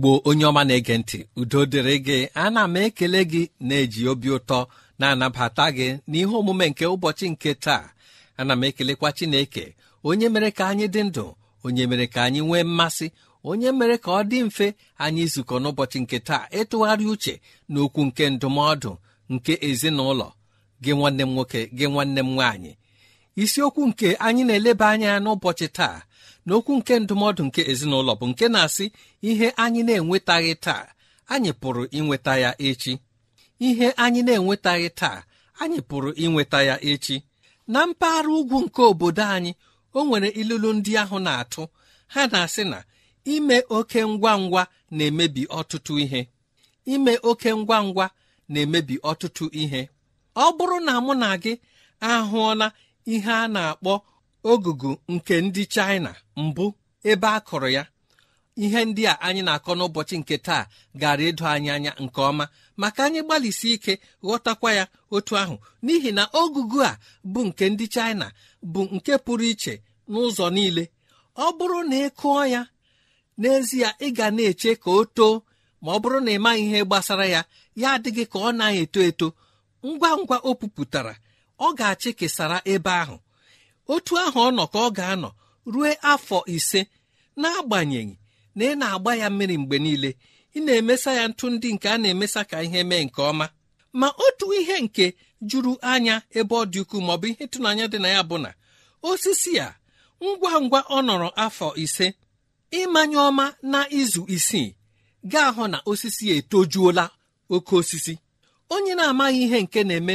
igbo onye ọma na-ege ntị udo dịrị gị ana m ekele gị na-eji obi ụtọ na-anabata gị n'ihe omume nke ụbọchị nke taa ana m ekelekwa chineke onye mere ka anyị dị ndụ onye mere ka anyị nwee mmasị onye mere ka ọ dị mfe anyị izukọ n'ụbọchị nke taa ịtụgharị uche n'okwu nke ndụmọdụ nke ezinụlọ gị nwanne m nwoke gị nwanne m nwaanyị isiokwu nke anyị na-eleba anya n'ụbọchị taa n'okwu nke ndụmọdụ nke ezinụlọ bụ nke na-asị ihe anyị na-enwetaghị taa anyị pụrụ inweta ya echi ihe anyị na-enwetaghị taa anyị pụrụ inweta ya echi na mpaghara ugwu nke obodo anyị o nwere ilulu ndị ahụ na-atụ ha na-asị na ime oke ngwa ngwa na-emebi ọtụtụ ihe ime oke ngwa ngwa na-emebi ọtụtụ ihe ọ bụrụ na mụ na gị ahụọla ihe a na-akpọ ogugu nke ndị China mbụ ebe a kụrụ ya ihe ndị a anyị na-akọ n'ụbọchị nke taa gara edo anyị anya nke ọma maka anyị gbalịsi ike ghọtakwa ya otu ahụ n'ihi na ogugu a bụ nke ndị China bụ nke pụrụ iche n'ụzọ niile ọ bụrụ na ị kụọ ya n'ezie ị ga na-eche ka o too ma ọ bụrụ na ị maghị ihe gbasara ya ya adịghị ka ọ na-eto eto ngwa ngwa o pupụtara ọ ga-achị kesara ebe ahụ otu ahụ ọ nọ ka ọ ga-anọ rue afọ ise n'agbanyeghị na ị na-agba ya mmiri mgbe niile ị na-emesa ya ntụ ndị nke a na-emesa ka ihe mee nke ọma ma otu ihe nke juru anya ebe ọ dị ukwuu maọbụ ihe ịtụnanya dị na ya bụ na osisi a ngwa ngwa ọ nọrọ afọ ise ịmanye ọma na izu isii gaa ahụ na osisi etojuola oke osisi onye na-amaghị ihe nke na-eme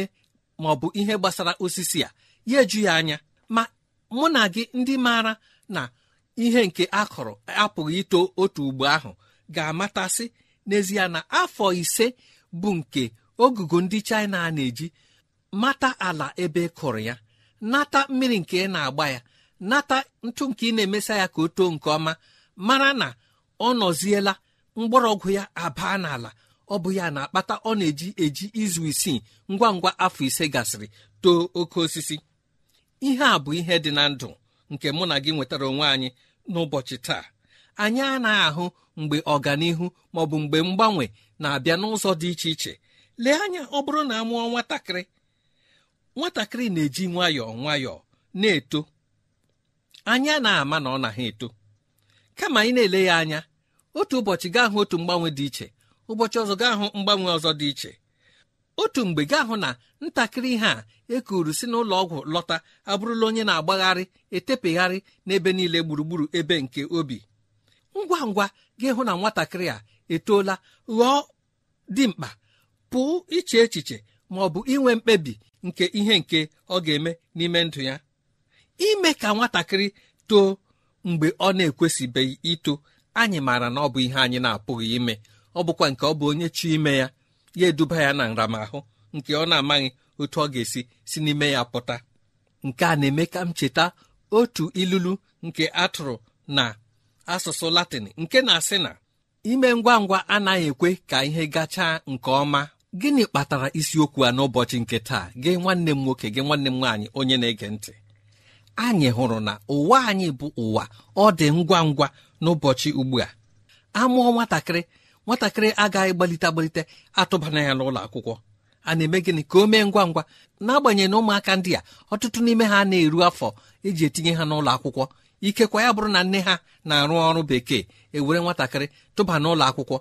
maọbụ ihe gbasara osisi a ya eju ya anya ma mụ na gị ndị maara na ihe nke a apụghị ito otu ugbo ahụ ga-amatasị n'ezie na afọ ise bụ nke ogugo ndị China a na-eji mata ala ebe e kụrụ ya nata mmiri nke ị na-agba ya nata ntụ nke ị na-emesa ya ka o too nke ọma mara na ọ nọziela mgbọrọgwụ ya abaa n'ala ọ bụ ya na-akpata ọ na-eji eji izu isii ngwa ngwa afọ ise gasịrị too oke osisi ihe a bụ ihe dị na ndụ nke mụ na gị nwetara onwe anyị n'ụbọchị taa anyị anaghị ahụ mgbe ọganihu ma ọ bụ mgbe mgbanwe na-abịa n'ụzọ dị iche iche lee anya ọ bụrụ na a mụọ nwatakịrị nwatakịrị na-eji nwayọọ nwayọọ na-eto anyị anaghị ama na ọ na ha eto kama anyị na-ele ya anya otu ụbọchị gaa hụ otu mgbanwe dị iche ụbọchị ọzọ gaa hụ mgbanwe ọzọ dị iche otu mgbe gaa hụ na ntakịrị ihe a ekuru si n'ụlọ ọgwụ lọta abụrụla onye na-agbagharị etepegharị n'ebe niile gburugburu ebe nke obi ngwa ngwa gị hụ na nwatakịrị a etoola ghọọ dimkpa pụọ iche echiche ma ọ bụ inwe mkpebi nke ihe nke ọ ga-eme n'ime ndụ ya ime ka nwatakịrị too mgbe ọ na-ekwesịbeghị ito anyị maara na ọ bụ ihe anyị na-apụghị ime ọ bụkwa nke ọ bụ onye chi ime ya ya eduba ya na nramahụ nke ọ na-amaghị otu ọ ga-esi si n'ime ya pụta nke a na-eme ka m cheta otu ilulu nke atụrụ na asụsụ latịn nke na-asị na ime ngwa ngwa anaghị ekwe ka ihe gachaa nke ọma gịnị kpatara isiokwu a n'ụbọchị nke taa gị nwanne m nwoke gị nwanne m nwaanyị onye na-ege ntị anyị hụrụ na ụwa anyị bụ ụwa ọ dị ngwa ngwa n'ụbọchị ugbu a amụọ nwatakịrị nwatakịrị agaghị gbalite agbalite atụbana ya n'ụlọ akwụkwọ a na-eme gịnị ka o mee ngwa ngwa n'agbanyeghị na ụmụaka ndị a ọtụtụ n'ime ha na-eru afọ eji etinye ha n'ụlọ akwụkwọ ikekwa ya bụrụ na nne ha na-arụ ọrụ bekee ewere nwatakịrị tụba n'ụlọ akwụkwọ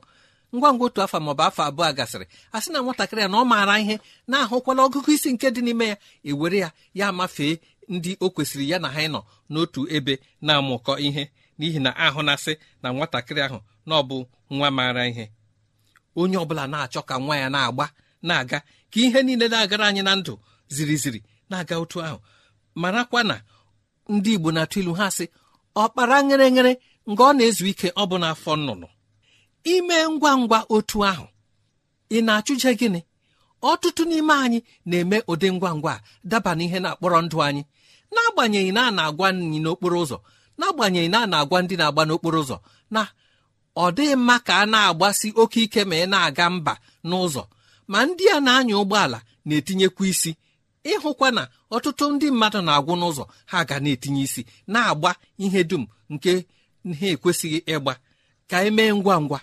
ngwa ngwa otu afọ maọbụ afọ abụọ gasịrị a na nwatakịrị ya na ọ maara ihe na-ahụkwala ọgụgụ isi nke dị n'ime ya ewere ya ya amafee ndị o kwesịrị ya na ha ịnọ n'otu ebe na-amụkọ ihe n'ihi na ahụ na-asị na nwatakịrị ahụ na ọ bụ nwa maara ihe onye ọbụla na-achọ ka nwa ya na-agba na-aga ka ihe niile na-agara anyị na ndụ ziri ziri na-aga otu ahụ marakwa na ndị igbo na-atụ ilu ha sị ọkpara nyere nyere nga ọ na-ezu ike ọ bụ n'afọ nnụnụ ime ngwa ngwa otu ahụ ị na-achụje gịnị ọtụtụ n'ime anyị na-eme ụdị ngwa ngwa daba n'ihe na-akpọrọ ndụ anyị n'agbanyeghị na a na-agwa anyị n'okporo ụzọ na-agbanyeghị na a na-agwa ndị na-agba n'okporo ụzọ na ọ dịghị mma ka a na-agbasi oke ike ma ị na-aga mba n'ụzọ ma ndị a na-anya ụgbọala na-etinyekwa isi ịhụkwa na ọtụtụ ndị mmadụ na-agwụ n'ụzọ ha ga na-etinye isi na-agba ihe dum nke ha ekwesịghị ịgba ka emee ngwa ngwa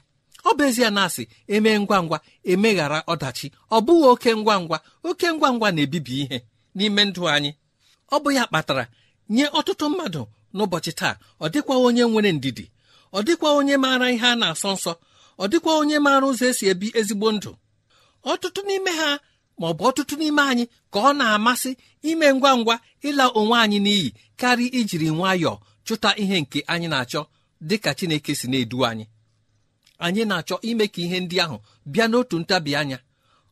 ọ bụ ezie na asị emee ngwa ngwa emeghara ọdachi ọ bụghị oke ngwa ngwa oke ngwa ngwa na-ebibi ihe n'ime ndụ anyị ọ bụ ya kpatara nye ọtụtụ mmadụ n'ụbọchị taa ọ dịkwa onye nwere ndidi ọ dịkwa onye maara ihe a na-asọ nsọ ọ dịkwa onye maara ụzọ esi ebi ezigbo ndụ ọtụtụ n'ime ha ma ọ bụ ọtụtụ n'ime anyị ka ọ na-amasị ime ngwa ngwa ịla onwe anyị n'iyi karịa ijiri nwayọọ chụta ihe nke anyị na-achọ dị ka Chineke si na-edu anyị anyị na-achọ ime ka ihe ndị ahụ bịa n'otu ntabi anya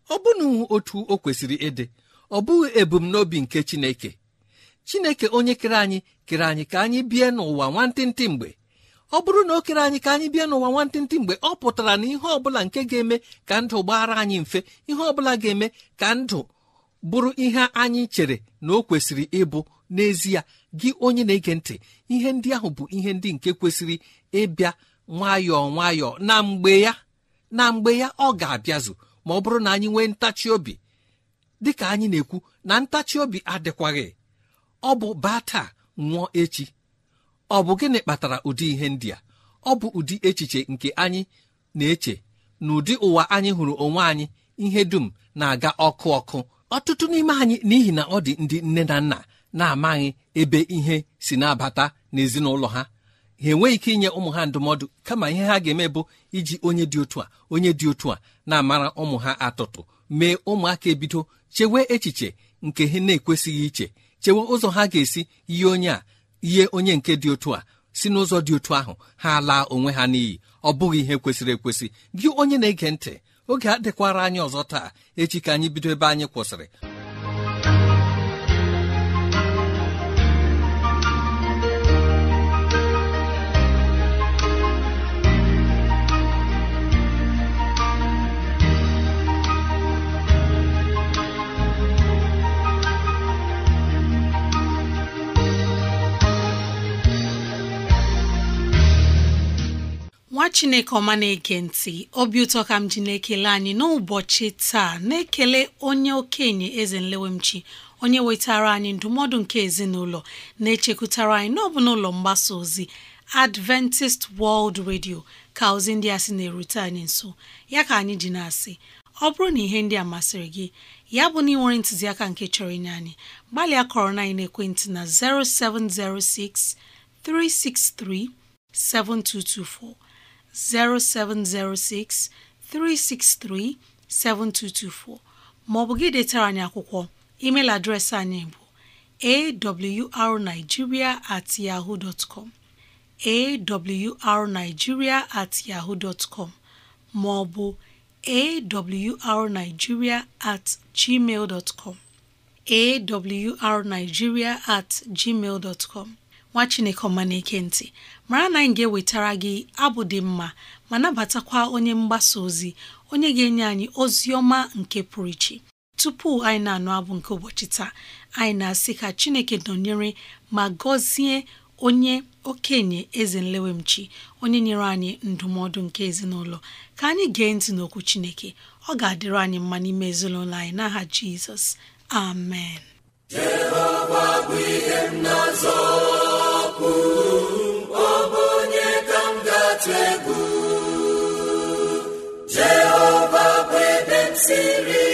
ọ bụna otu o kwesịrị ịdị ọ bụghị ebumnobi nke Chineke Chineke onye kere anyị kere anyị ka anyị bie n'ụwa nwantịntị mgbe ọ bụrụ na o kere anyị ka anyị bịa n'ụwa nwantịntị mgbe ọ pụtara na ihe ọbụla nke ga-eme ka ndụ gbaara anyị mfe ihe ọbụla ga-eme ka ndụ bụrụ ihe anyị chere na o kwesịrị ịbụ n'ezie gị onye na-ege ntị ihe ndị ahụ bụ ihe ndị nke kwesịrị ịbịa nwayọọ nwayọọ na mgbe ya na mgbe ya ọ ga-abịazụ ma ọ bụrụ na anyị nwee ntachi obi dịka anyị na-ekwu na ntachi obi adịkwaghị ọ bụ baa taa nwụọ echi ọ bụ gịnị kpatara ụdị ihe ndị a ọ bụ ụdị echiche nke anyị na-eche na ụdị ụwa anyị hụrụ onwe anyị ihe dum na-aga ọkụ ọkụ ọtụtụ n'ime anyị n'ihi na ọ dị ndị nne na nna na-amaghị ebe ihe si na-abata n'ezinụlọ ha ha enweghị ike inye ụmụ ha ndụmọdụ kama ihe ha ga-eme bụ iji onye dị otu a onye dị otu a na-amara ụmụ ha atụtụ mee ụmụaka ebido chewe echiche nke ha na-ekwesịghị iche chewe ụzọ ha ga-esi yie onye a ihe onye nke dị otu a si n'ụzọ dị otu ahụ ha laa onwe ha n'iyi ọ bụghị ihe kwesịrị ekwesị gị onye na-ege ntị oge adịkwara anyị ọzọ taa echi ka anyị bido ebe anyị kwụsịrị chineke ọma na-ege ntị obi ụtọ ka m ji na-ekele anyị n'ụbọchị taa na-ekele onye okenye eze nlewemchi onye wetara anyị ndụmọdụ nke ezinụlọ na-echekwutara anyị n'ọbụ n'ụlọ mgbasa ozi Adventist World Radio ka ozi ndị a sị na-erute anyị nso ya ka anyị ji na-asị ọ bụrụ na ihe ndị a masịrị gị ya bụ na ị nwere ntụziaka nke chọrọ inye anyị gbalịa kọrọ na ekwentị na 0706 363 7224 0706 363 7224 maọbụ gị detara anyị akwụkwọ email adreesị anyị bụ awrnigeria at yahoo dot com awrnigeria at yahoo dot maọbụ awrnigeria at gmail awrnigeria at gmail nwa chineke ọma na-eke ntị mara na anyị ga-ewetara gị abụ dị mma ma nabatakwa onye mgbasa ozi onye ga-enye anyị ozi ọma nke pụrụ iche tupu anyị na-anụ abụ nke ụbọchị taa anyị na-asị ka chineke nọnyere ma gọzie onye okenye eze nlewemchi onye nyere anyị ndụmọdụ nke ezinụlọ ka anyị gee ntị n'okwu chineke ọ ga-adịrị anyị mma n'ime ezinụlọ anyị n'aha jizọs amen Jehova bụ ihe m na-azọ siri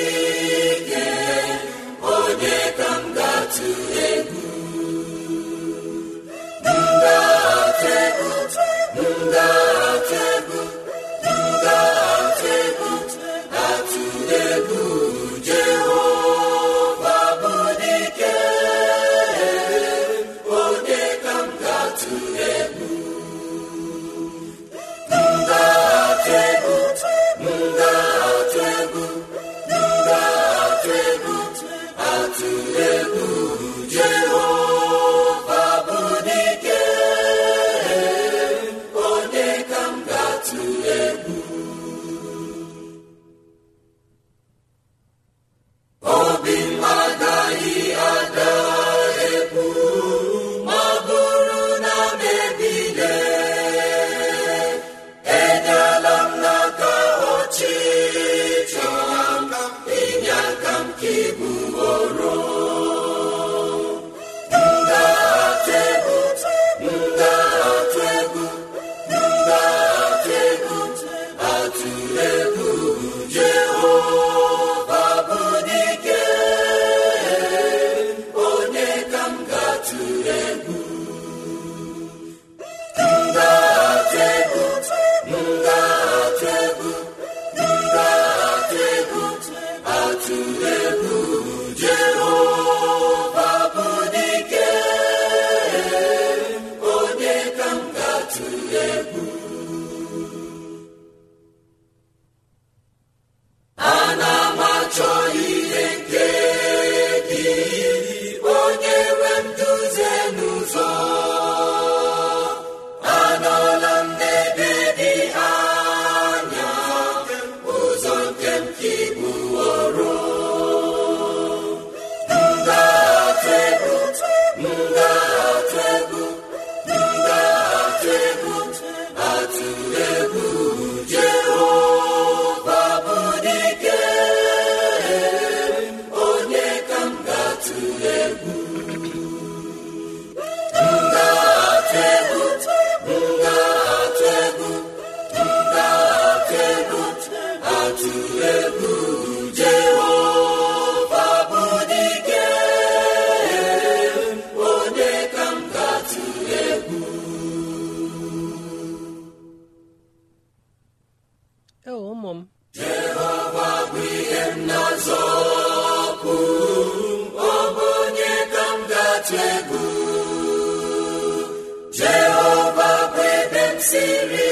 siri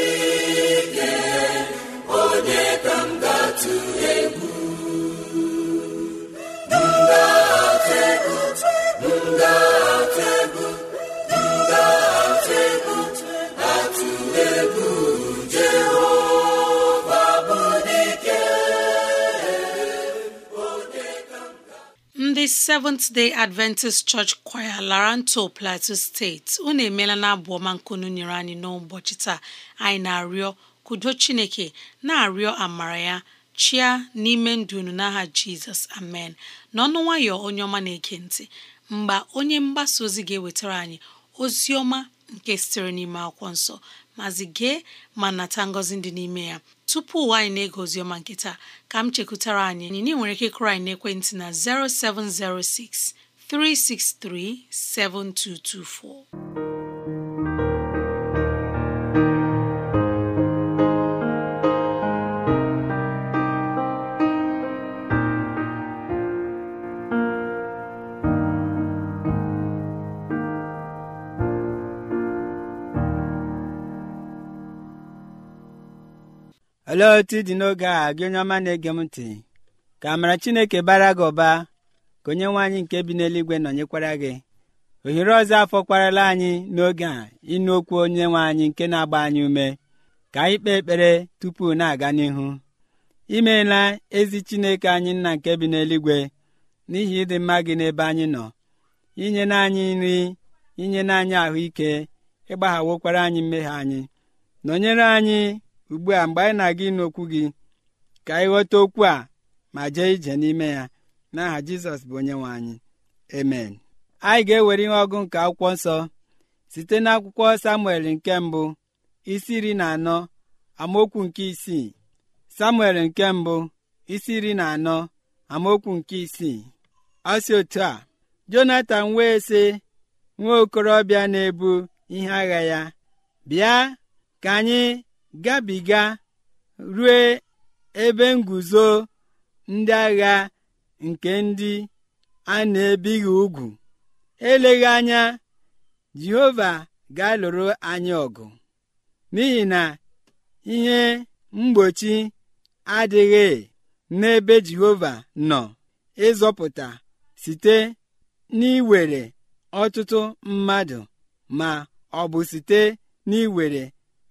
Seventh Day Adventist Church Choir Laranto Plateau steeti unu emeela na abụ ọma nkunu nyere anyị n'ụbọchị taa anyị na-arịọ kudo Chineke na-arịọ amara ya chia n'ime ndụ unu n'aha Jizọs amen n'ọnụ nwayọ onye ọma na-ege ntị mgbe onye mgbasa ozi ga-ewetara anyị ozi ọma nke sitere n'ime akwụkwọ nsọ mazi gee ma nata ngọzi dị n'ime ya tupu ụwa anyị na-ege oziọma nke ka m chekwutara anyị na nwere ike ịkụrụ anyị n'ekwentị na 0706 363 7224 olee otu dị n'oge a gị onye ọma na-ege m ntị ka amara chineke bara gị ụba ka onye nwaanyị anyị nke bi n'eluigwe nọnyekwara gị ohere ọzọ afọ kwarala anyị n'oge a ịnụ okwu onye nwe anyị nke na-agba anyị ume ka anyị kpee ekpere tupu na-aga n'ihu imeela ezi chineke anyị nna nke bi n'eluigwe n'ihi ịdị mma gị n'ebe anyị nọ inye n'anyị nri inye n'anyị anyị ahụike ịgbaghawokwara anyị mmehie anyị nọnyere anyị ugbu a mgbe anyị na-aga ịnụ okwu gị ka anyị ghọta okwu a ma jee ije n'ime ya n'aha jizọs bụ onye nwe anyị amen anyị ga-ewere ihe ọgụ nke akwụkwọ nsọ site n'akwụkwọ samuel nke mbụ isi iri na anọ amaokwu nke isii samuel nke mbụ isi iri na anọ amaokwu nke isii ọ otu a jonatan wee sị nwa okorobịa na-ebu ihe agha ya bịa ka anyị gabiga rue ebe nguzo ndị agha nke ndị a na-ebighị ugwu eleghị anya jehova ga-alụrụ anyị ọgụ n'ihi na ihe mgbochi adịghị n'ebe jehova nọ ịzọpụta site n'iwere ọtụtụ mmadụ ma ọ bụ site n'iwere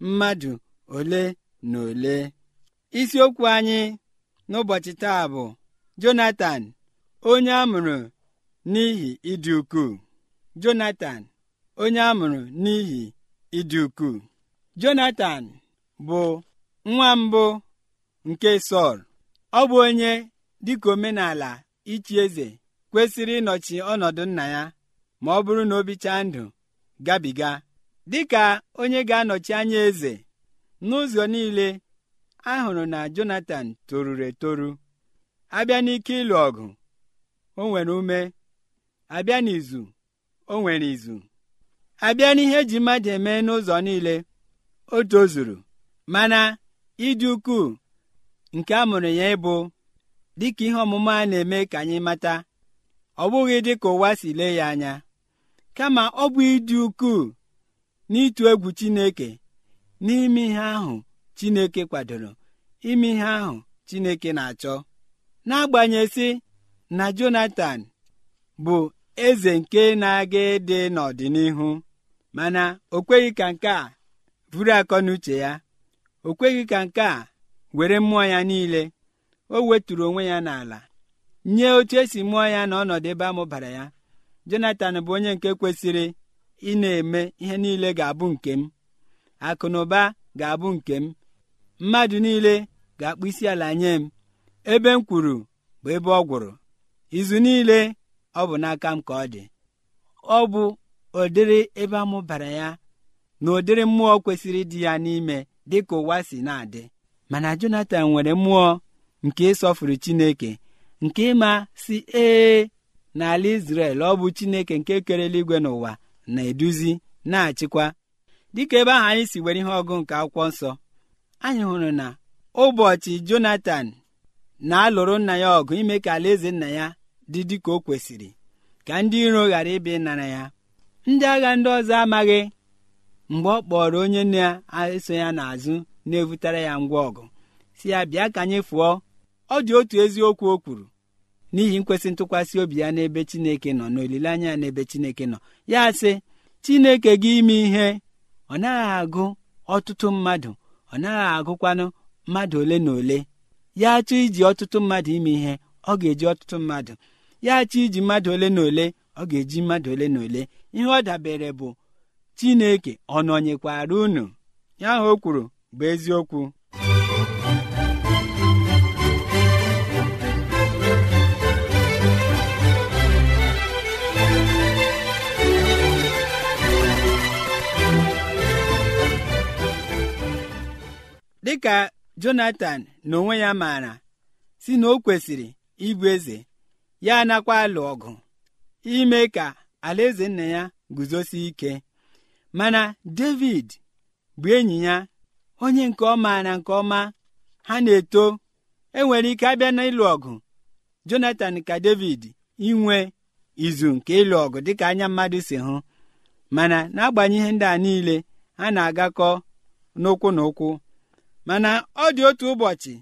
mmadụ ole na ole isiokwu anyị n'ụbọchị taa bụ jonatan onye a mụrụ n'ihi ịdị ukwuu jonatan onye a n'ihi ịdị ukwuu jonatan bụ nwa mbụ nke sọl ọ bụ onye dịka omenala ichi eze kwesịrị ịnọchi ọnọdụ nna ya ma ọ bụrụ na o bichaa ndụ gabiga dịka onye ga-anọchi anya eze n'ụzọ niile ahụrụ na Jonatan toruru etoru abịa n'ike ịlụ ọgụ o nwere ume abịa n'izu o nwere izu abịa n'ihe eji mmadụ eme n'ụzọ niile o tozuru mana ịdị ukwuu nke a mụrụ ya ịbụ dịka ihe ọmụma a na-eme ka anyị mata ọ bụghị dịka ụwa si lee ya anya kama ọ bụ ịdị ukwuu n'ịtụ egwu Chineke n'ime ihe ahụ Chineke kwadoro ime ihe ahụ Chineke na-achọ n'agbanyeghị na jonathan bụ eze nke na-aga ịdị n'ọdịnihu mana o kweghị ka nke a buru akọ n'uche ya o kweghị ka nke a were mmụọ ya niile o weturu onwe ya n'ala nye otu esi mụọ ya na ọnọdụ ebe a ya Jonatan bụ onye nke kwesịrị ị na-eme ihe niile ga-abụ nke m akụnụba ga-abụ nke m mmadụ niile ga-akpụ isi ala nye m ebe m kwuru bụ ebe ọ gwụrụ izu niile ọ bụ n'aka m ka ọ dị ọ bụ ụdịrị ebe amụbara ya na ụdịrị mmụọ kwesịrị dị ya n'ime dị ka ụwa si na-adị mana jonathan nwere mmụọ nke ịsọfụrụ Chineke nke ịma si ee n'ala Izrel ọ bụ Chineke nke kere eluigwe n'ụwa na-eduzi na-achịkwa dịka ebe ahụ anyị si were ihe ọgụ nke akwụkwọ nsọ anyị hụrụ na ụbọchị Jonatan na-alụrụ nna ya ọgụ ime ka alaeze nna ya dị dịka o kwesịrị ka ndị iro ghara ịbịa ịnara ya ndị agha ndị ọzọ amaghị mgbe ọ kpọrọ onye na-eso ya n'azụ na-evutara ya ngwa ọgụ si ya bịa ka anyị fụọ ọ dị otu eziokwu o kwuru n'ihi nkwesị ntụkwasị obi ya n'ebe Chineke nọ na olileanya ya n'ebe Chineke nọ ya sị Chineke gị ime ihe ọ naghị agụ ọtụtụ mmadụ ọ naghị agụkwanụ mmadụ ole na ole ya chọọ iji ọtụtụ mmadụ ime ihe ọ ga-eji ọtụtụ mmadụ ya chọọ iji mmadụ ole na ole ọ ga-eji mmadụ ole na ole ihe ọ dabere bụ Chineke ọ nọnyekwara unu ya ahụ o kwuru bụ eziokwu dịka Jonatan na onwe ya maara si na o kwesịrị ịbụ eze ya anakwa alụ ọgụ ime ka alaeze nna ya guzosie ike mana David bụ enyi ya onye nke ọma na nke ọma ha na-eto enwere ike abịa n'ịlụ ọgụ Jonathan ka David inwe izu nke ịlụ ọgụ dịka anya mmadụ si hụ mana n'agbanyeghị ndị a niile ha na-agakọ n'ụkwụ na ụkwụ mana ọ dị otu ụbọchị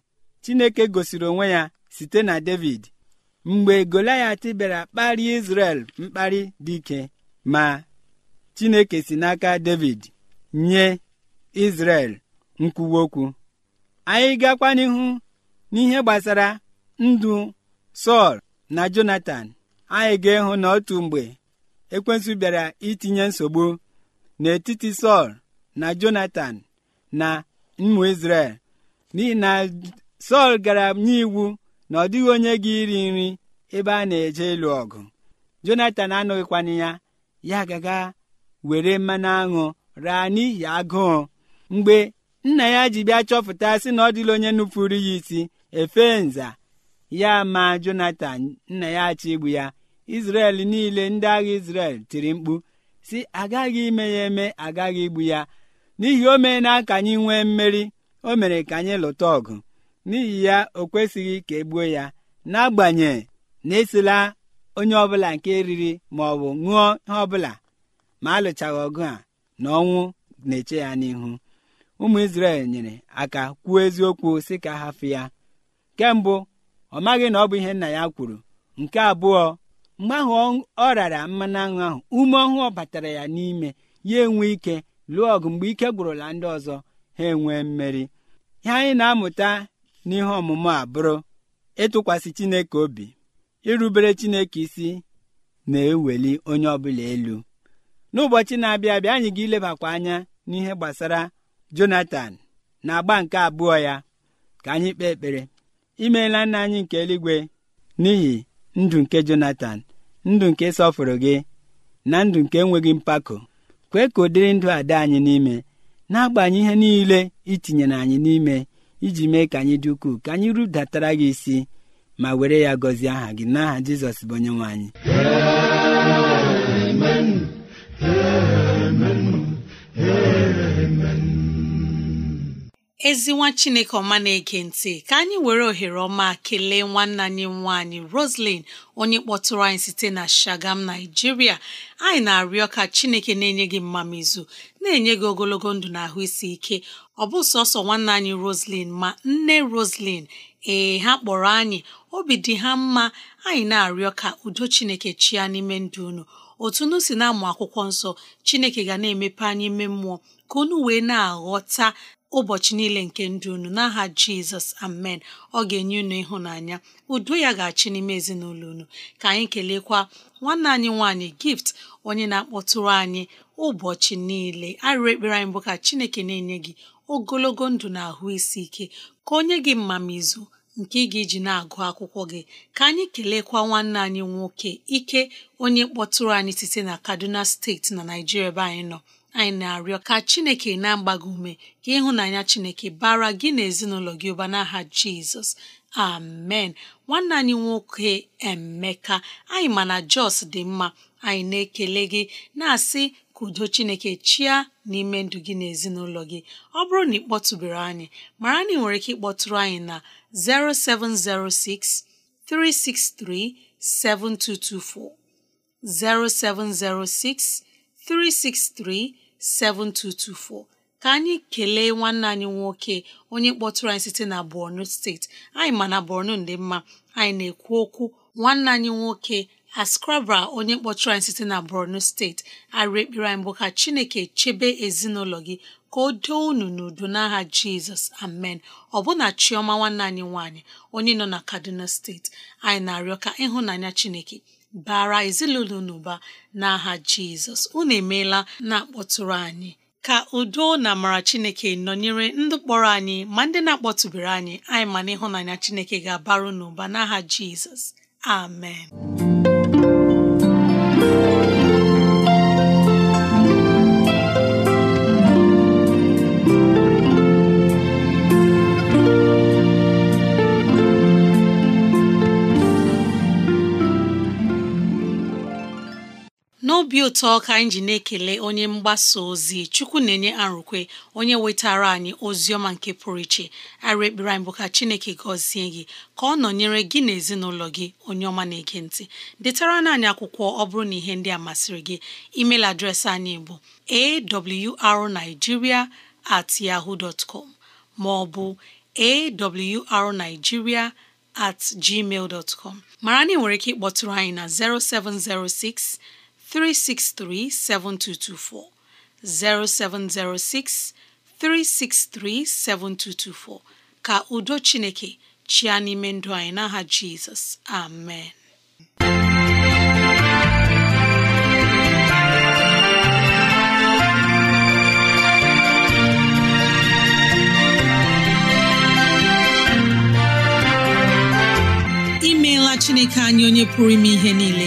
Chineke gosiri onwe ya site na David mgbe Goliath bịara kparịa Izrel mkparị dị ike ma Chineke si n'aka David nye Izrel nkwuwa okwu anyị gakwa n'ihu n'ihe gbasara ndụ Sọl na Jonatan anyị ga-ịhụ na otu mgbe ekwensu bịara itinye nsogbu n'etiti Sọl na jonathan na ụmụ Izrel n'ihi na Sọl gara iwu na ọ dịghị onye gị iri nri ebe a na-eje ịlụ ọgụ Jonatan anụghịkwana ya ya gaga were mmanụ aṅụ raa n'ihi agụụ mgbe nna ya ji bịa chọpụta sị na ọ dịla onye nupụrụ ya isi efe nza ya ma Jonatan nna ya achọ igbu ya Izrel niile ndị agha Izrel tiri mkpu si agaghị ime ya eme agaghị igbu ya n'ihi o na ka anyị nwee mmeri o mere ka anyị lụta ọgụ n'ihi ya o kwesịghị ka e gbuo ya n'agbanyeghị na esila onye ọbụla nke riri ma ọ bụ ṅụọ ihe ọbụla ma alụchaghị ọgụ a na ọnwụ na-eche ya n'ihu ụmụ Izrel nyere aka kwuo eziokwu si ka hafụ ya nke ọ maghị na ọ bụ ihe nna ya kwuru nke abụọ mgbe ahụ ọ rara mmanụ aṅụ ahụ ume ọhụụ batara ya n'ime ya enwe ike lụọ ọgụ mgbe ike gwụrụla ndị ọzọ ha enwee mmeri ihe anyị na-amụta n'ihe ọmụmụ abụrụ ịtụkwasị Chineke obi irubere Chineke isi na-eweli onye ọbụla elu n'ụbọchị na-abịa abịa anyị ga-ilebakwa anya n'ihe gbasara Jonatan na agba nke abụọ ya ka anyị kpee ekpere imeela nna anyị nke eluigwe n'ihi ndụ nke Jonatan ndụ nke sọfụrụ gị na ndụ nke enweghị mpako kwee ka ụdịrị ndụ a dị anyị n'ime na-agbanye ihe niile itinyere anyị n'ime iji mee ka anyị dị ukwuu ka anyị rudatara gị isi ma were ya gọzie aha gị n'aha Jizọs bụ onye nwe anyị ezi nwa chineke ọma na-ege ntị ka anyị were ohere ọma kelee nwanna anyị nwaanyị roslyn onye kpọtụrụ anyị site na shagam naijiria anyị na-arịọ ka chineke na-enye gị mmamizu na-enye gị ogologo ndụ na ahụ isi ike ọ bụ sọsọ nwanna anyị roslyn ma nne roslyn ee ha kpọrọ anyị obi dị ha mma anyị na-arịọ ka udo chineke chia n'ime ndụ unu otu unu si na-amụ akwụkwọ nsọ chineke ga na-emepe anyị ime mmụọ ka unu wee na-aghọta ụbọchị niile nke ndụ unu n'aha jizọs amen ọ ga-enye unu ịhụnanya udo ya ga-achị n'ime ezinụlọ unu ka anyị kelekwa nwanne anyị nwaanyị gift onye na-akpọtụrụ anyị ụbọchị niile arịrị ekpere anyị bụ ka chineke na-enye gị ogologo ndụ na ahụ isi ike ka onye gị mmamizu nke ị ga-eji na-agụ akwụkwọ gị ka anyị kelekwa nwanne anyị nwoke ike onye kpọtụrụ anyị site na kaduna steeti na naijiria ebe anyị nọ anyị na-arịọ ka Chineke na-agba gị ume ka ịhụnanya Chineke bara gị na ezinụlọ gị ụba n'aha Jizọs amen nwanne anyị nwoke Emeka anyị ma na Jos dị mma anyị na-ekele gị na-asị ka udo Chineke chia n'ime ndụ gị na ezinụlọ gị ọ bụrụ na ị kpọtụbere anyị mara na ị nwere ike ịkpọtụrụ anyị na 0706 363 7224 0706 363-7224 ka anyị kelee nwanne anyị nwoke onye kpọtụrụ anyị site na Borno steeti anyị ma na Borno dị mma anyị na-ekwu okwu nwanne anyị nwoke Askrabra onye kpọtụrụ anyị site na Borno steeti arị ekpere anyị bụ ka Chineke chebe ezinụlọ gị ka o doo unu n'udo n'aha Jizọs amen ọ bụ na Chioma nwanne anyị nwaanyị onye nọ na Kaduna steeti anyị na-arịọ ka ịhụnanya Chineke bara ezinụlọ n'ụba ụba n'aha jizọs unu emeela na-akpọtụrụ anyị ka udo na amara chineke nọnyere ndụ kpọrọ anyị ma ndị na-akpọtụbere anyị anyị ma na ịhụnanya chineke ga-abaru n'ụba n'aha jizọs amen obi ụtọ ka anyị ji na-ekele onye mgbasa ozi chukwu na-enye arụkwe onye wetara anyị ozi ọma nke pụrụ iche ara ekpere anyị bụ ka chineke gọzie gị ka ọ nọnyere gị na ezinụlọ gị onye ọma na-ege ntị detara anyị akwụkwọ ọ bụrụ na ihe ndị a masịrị gị email adreesị anyị bụ arigiria at yahoo dot com maọbụ ọ at gmail dot com mara na ị nwere ike ịkpọtụrụ anyị na 0706 363 7224 0706 363 7224 ka udo Chineke chịa n'ime ndụ anyị n'aha Jizọs amen imeela Chineke anyị onye pụrụ ime ihe niile